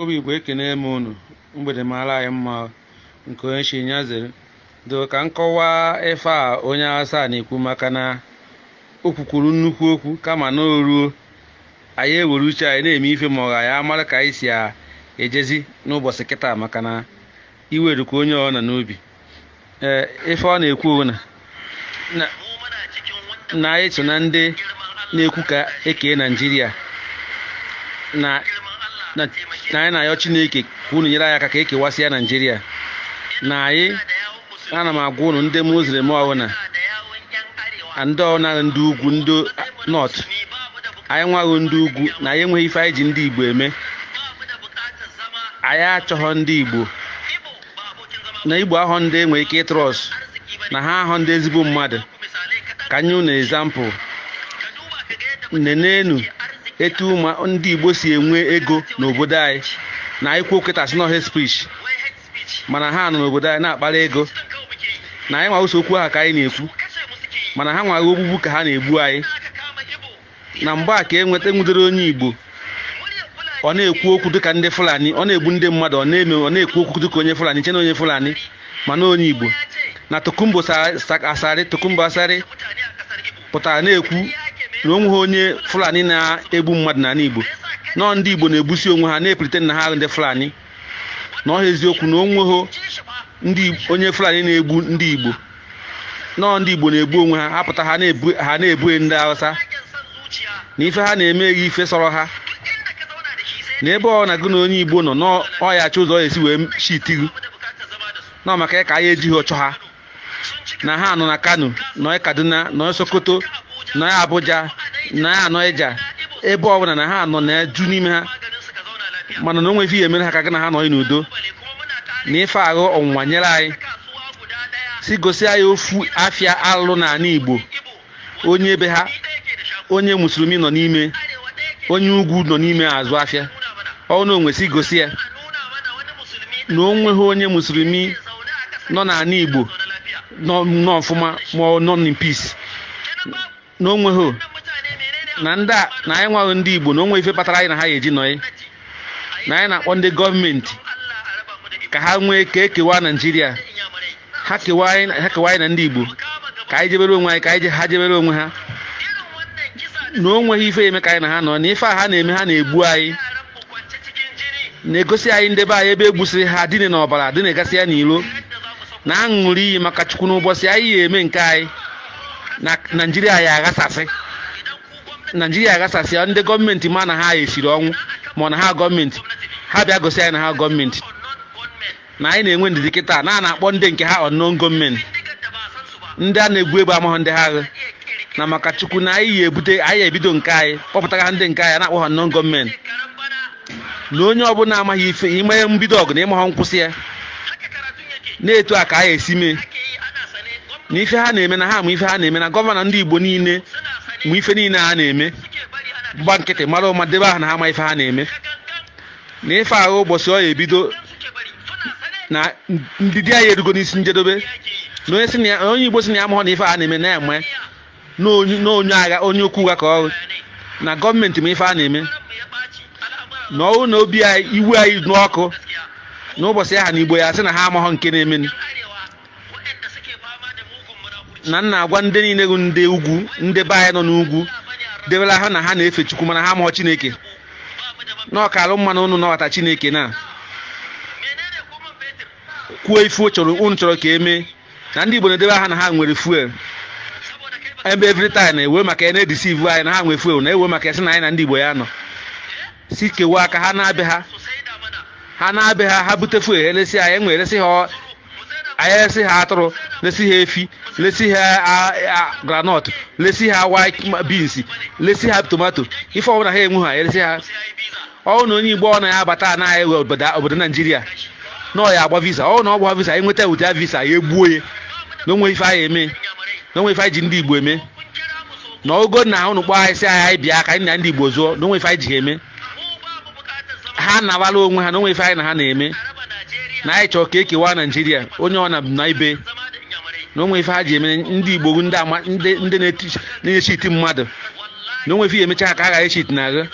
obi eke ekene m unu mgbede mara anyị mma nke onye chi nyazere do ka nkọwa ife a onye asaa na-ekwu maka na o kwukwuru nnukwu okwu kama na o ruo anyị ewere uche anyị na-eme ife ma ọ ga ya mara ka anyị si ejezi n'ụbọchị kịta maka na iwerukwa onye ọ na n'obi ee ife ọ na-ekwu na na anyị so na ndị na-ekwu ka ekee naijiria na na anyị na-ayọ chineke ka unu nyere anyị aka ka e kewasịa naijiria na anyị ana m agwa unu ndị muslim a ndị ọbụla ndị ugwu ndị nọt anyị nwaghị ndị ugwu na anyị enweghị ife anyị ji ndị igbo eme anyị achọghọ ndị igbo na igbo ahụ ndị enweghị ike ịtrọs na ha ahụ ndị ezigbo mmadụ ka anyị unu ezampụl nenenu etu ndị Igbo si enwe ego n'obodo anyị na anyị kwuo kịtasị na head mana ha nọ n'obodo anyị na-akpara ego na anyị nwa okwu ha ka anyị na-ekwu mana ha nwaghị ogbugbu ka ha na-egbu anyị na mgbe a ka e nweta onye Igbo ọ na-ekwu okwu dịka ndị Fulani ọ na-egbu ndị mmadụ ọ na-eme ọ na-ekwu okwu dịka onye Fulani nche na onye Fulani mana onye Igbo na Tokumbo asarị Tokumbo asarị pụtara na-ekwu na onwe onye fulani na-egbu mmadụ na igbo nọọ ndị igbo na-egbusi onwe ha na-epulite na ha ndị fulani na ọha eziokwu na onweghị onye fulani na-egbu ndị igbo nọọ ndị igbo na-egbu onwe ha apụta ha na-ebughe ndị hausa na ife ha na-emeghị ife sọrọ ha na ebe ọ na gị na onye igbo nọ n'ọyachi ụzọ ya esi wee na nọ maka ịka ya ejighị ụchọ ha na ha nọ na kano na kaduna na sokoto nọ Abuja na anọ Ija ebe ọbụla na ha anọ na-eju n'ime ha mana na onweghị ihe mere ha ka gị na ha nọ n'udo na ife ahụ ọnwụnwa nyere anyị si gosi anyị ofu afia alụ n'ala Igbo onye ebe ha onye musulmi nọ n'ime onye ugwu nọ n'ime azụ afia ọ na onwe si gosi ya na onweghi onye musulmi nọ n'ala Igbo nọ n'ọfụma ma nọ peace na onwe na ndị a na anyị nwaghị ndị igbo na onwe ife kpatara anyị na ha ga-eji nọye na anyị na-akpọ ndị gọọmenti ka ha nwee ka ekewa naijiria ha kewa anyị na ndị igbo ka anyị jebere onwe anyị ka anyị ha jebere onwe ha na onweghị ife eme ka anyị na ha nọ na ife a ha na-eme ha na-egbu anyị na-egosi anyị ndebe anyị ebe egbusiri ha dịne n'ọbara na-egasị ya n'ilo na aṅụrị iyi maka chukwu n'ụbọchị anyị ya eme nke anyị na naijiria ya aghasasị naijiria aghasasị ndị gọọmenti ma na ha esiri ọnwụ ma na ha gọọmenti ha bịa gosi anyị na ha gọọmenti na anyị na-enwe ndidi kịta na a na-akpọ ndị nke ha ọnụn gọọmenti ndị a na-egbu egbu amahụ ndị ha aghụ na maka chukwu na anyị ya ebute anyị ebido nke anyị kpọpụtara ha ndị nke anyị na-akpọ ha ọnụn gọọmenti na onye ọbụla amaghị ife ime mbido ọgụ na ịmaghọ nkwụsị ya na-etu a ka anyị esi mee na ife ha na-eme na ha ma ife ha na-eme na gọvanọ ndị igbo niile ma ife niile ha na-eme gba nkịtị mara ụma debe aha na ha ma ife ha na-eme na ife ahụ ụbọchị ọ ya ebido na ndị di anyị erugo n'isi njedebe na onye igbo si na ya mahụ na ife ha na-eme na-eme na onye agha onye okwu ụgha ka ọrụ na gọọmenti ma ife a na-eme na ọrụ na obi anyị iwe anyị n'ọkụ ụbọchị aha na igbo ya sị na ha amaghọ nke na-emenu na nna agwa ndị niile bụ ndị ugwu ndị be anyị nọ n'ugwu debela ha na ha na-efe chukwu mana ha mụọ chineke na ọkara mmanụ ụnụ nọwata chineke na kwuo ifu chọrọ unu chọrọ ka eme na ndị igbo na-edebe ha na ha nwere fuel ebe every time ewe maka ya na ivu anyị na ha nwere fuel na-ewe maka ya sị na anyị na ndị igbo ya nọ si kewe aka ha na-abịa ha ha na-abịa ha ha bute fuel eresi anyị enwe ha anyị eresi e ha atụrụ lesi ha efi lesi ha granọt lesi ha white beans lesi ha tomato ife ọbụla ha enwe ha elesi ha ọwụ na onye igbo ọ na-abata anaghị ewe obodo naijiria na ọ ya agba visa ọwụ na ọ gba visa enweta ụdị visa ya egbuo ya na onwe ife anyị eme na onwe ife anyị ji ndị igbo eme na ogo na ahụ nụkpọ anyị si anyị bịa ka anyị na ndị igbo zụọ na onwe ife anyị ji eme ha na onwe ha na onwe ife anyị na ha na-eme na anyị chọọ ka ekewa naijiria onye ọ na na ibe na onwe ife ha ji emere ndị igbo ndị na-echiti mmadụ na onwe ife ya emecha ka a gaghị echiti na agha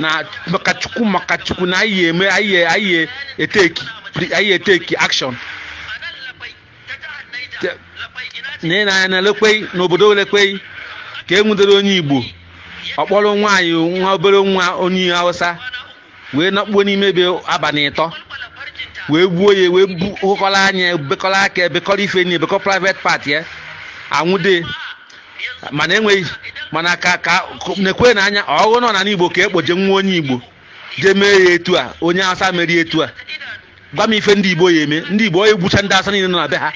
na maka chukwu maka chukwu na anyị eteki akshọn na na lekwe n'obodo lekwe ka e nwudere onye igbo ọkpọrọ nwaanyị nwa obere nwa onye hausa wee nakpuo n'ime ebe abalị ịtọ wee gbuo ya wee bukọrọ anya bekọrọ aka ebekọrọ ife nyi ebekọ private pati ya anwụde mana enweghị mana ka ka na-ekwe na anya ọghụ nọ na n'igbo ka ekpoje nwa onye igbo je mee ya etu a onye asa merie etu a gwa m ife ndị igbo ya eme ndị igbo onye gbucha ndị asa niile nọ na be ha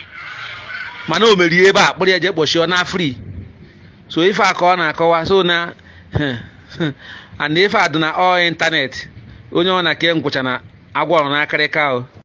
mana o merie ebe a ya je kpọchie ọ na fri so ife a ka ọ na-akọwa so na and ife a dị na ọ ịntanetị onye ọ na ke ngwụcha na agwa na n'akarịka o